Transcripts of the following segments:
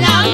Mariana.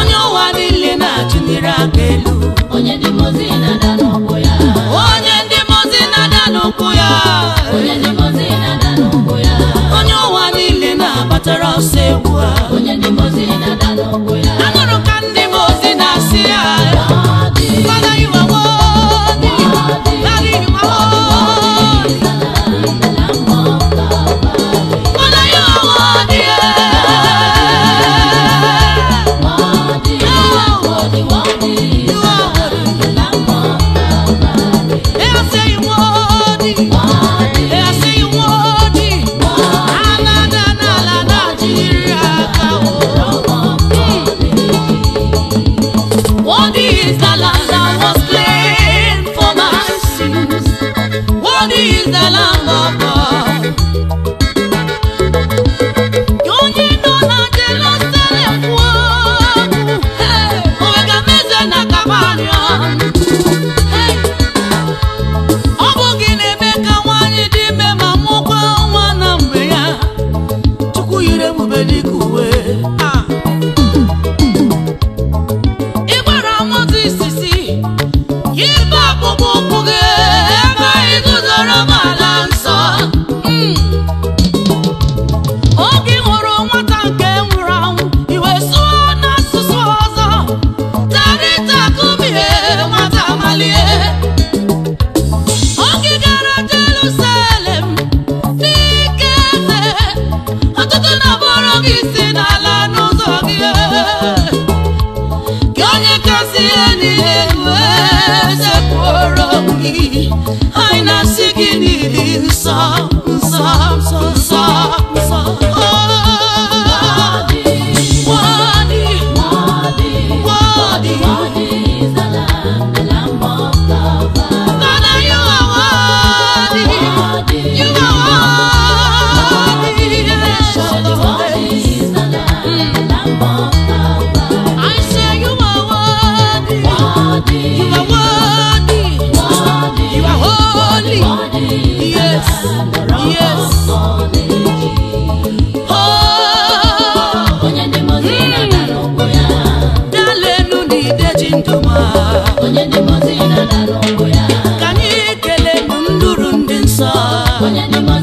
onye ụwa niile na-achụliri aka elu onye ndị mozi na-ada n'ụkwụ ya onye ndị mozi na-ada n'ụkwụ ya onye ụwa niile na-agbatara ọsọ egwu a All these alarms. I not sick onye na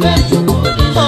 远处的山。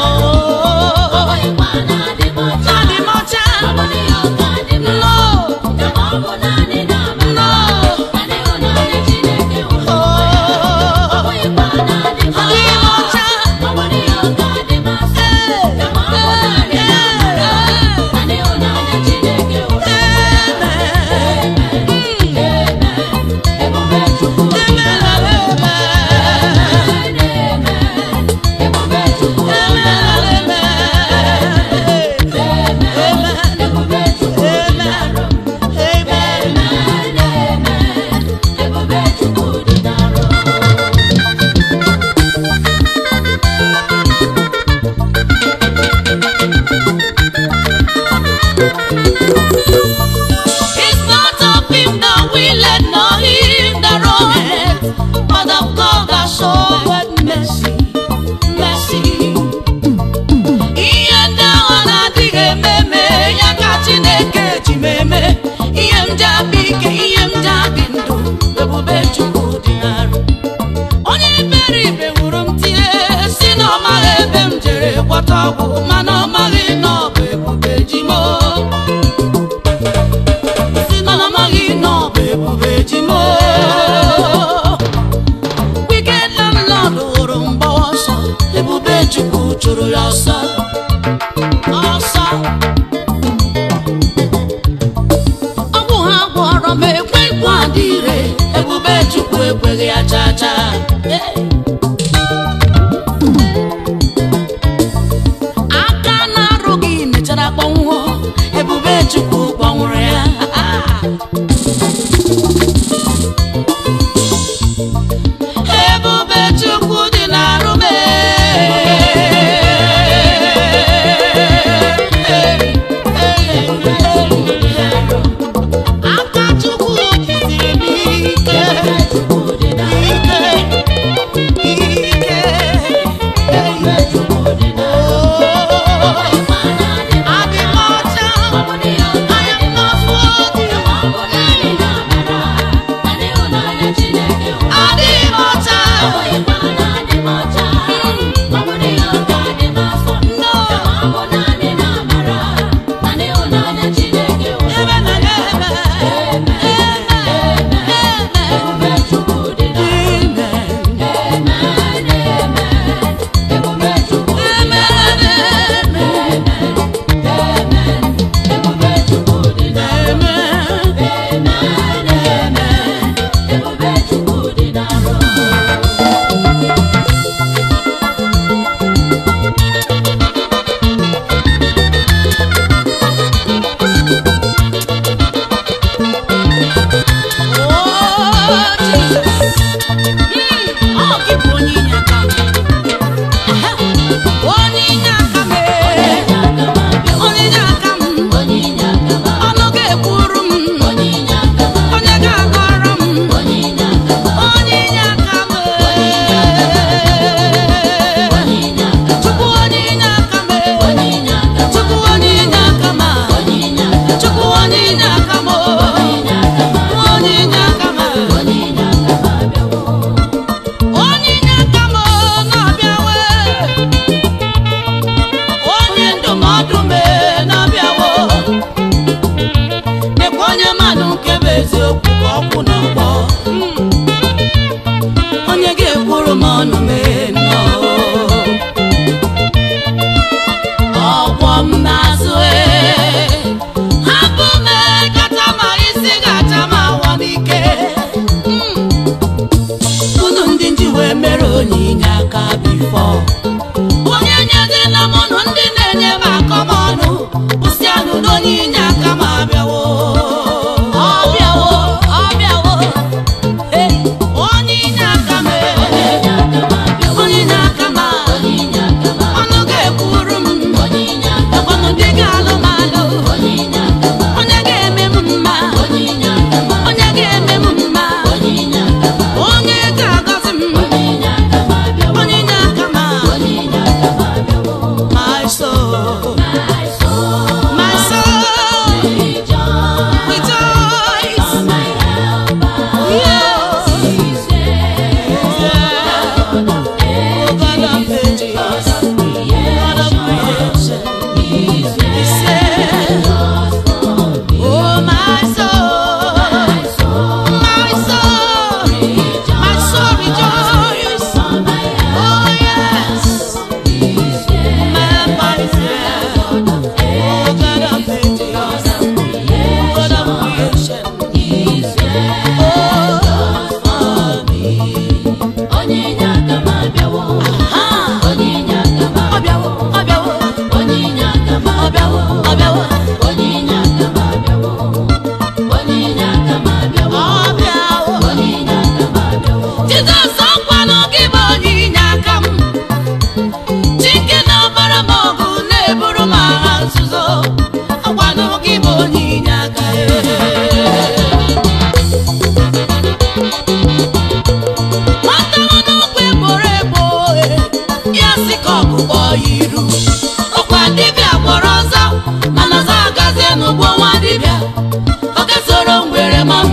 ¡Oh!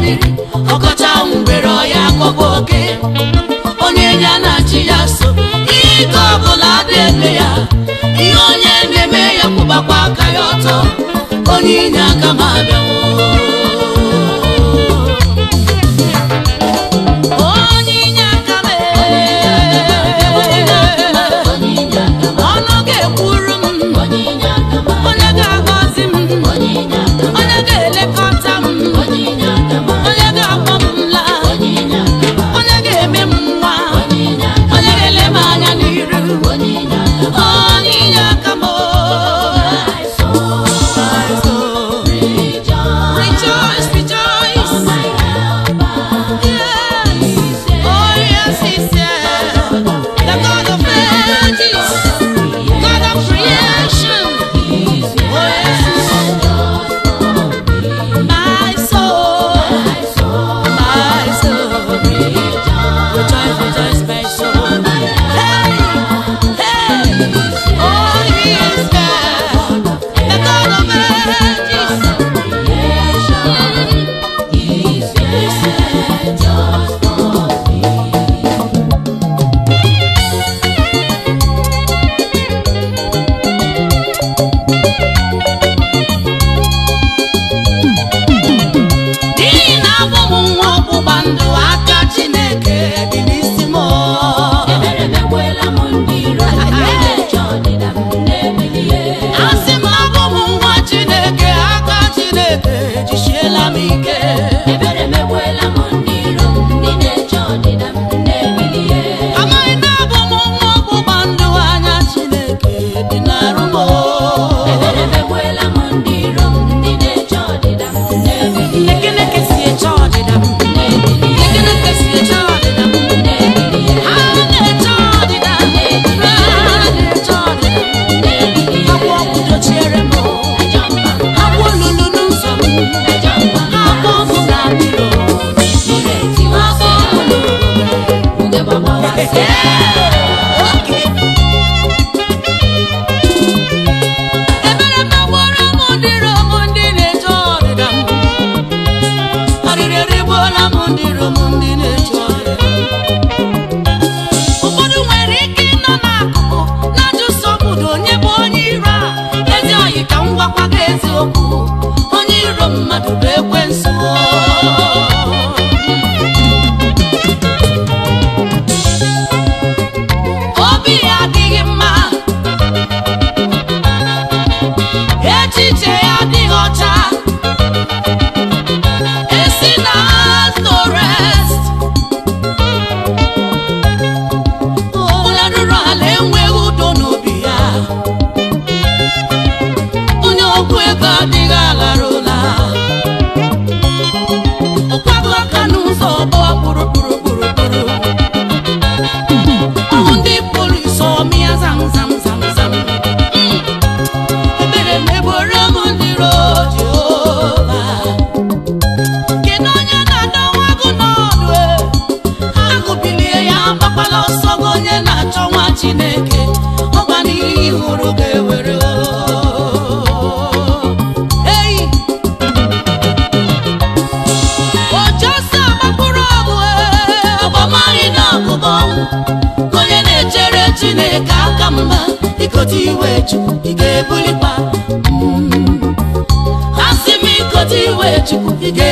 mmiri ọkọcha were ọya akọba oke onye ya na achị ya so ihe ike ọbụla dị ya ihe onye na-eme ya kwụbakwa aka ya ọtọ onye inye aka ma abịawo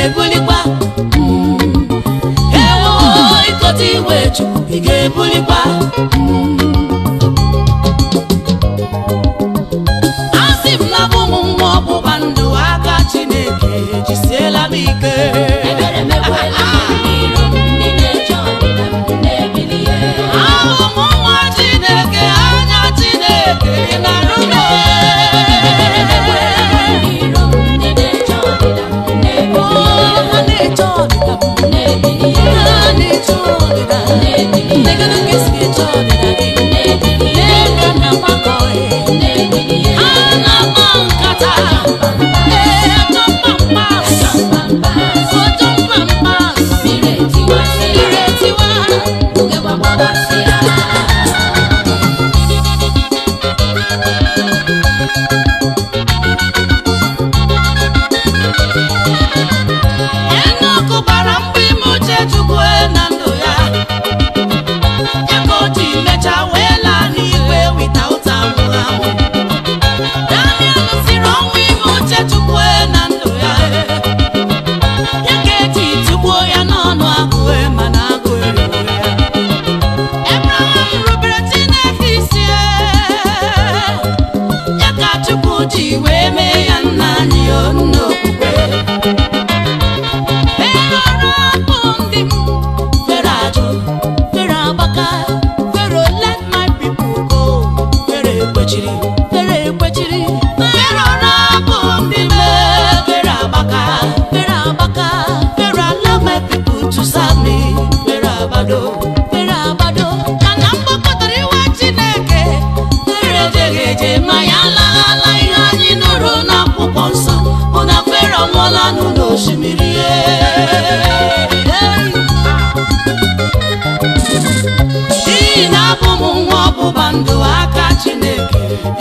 Ой,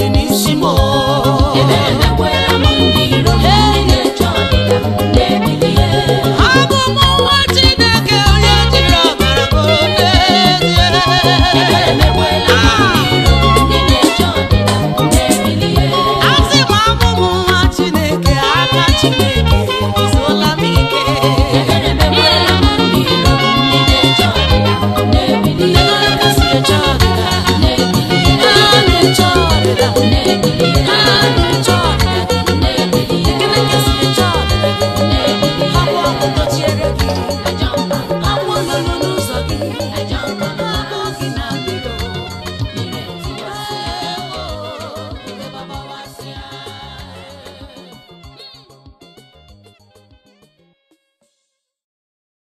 You need Oh.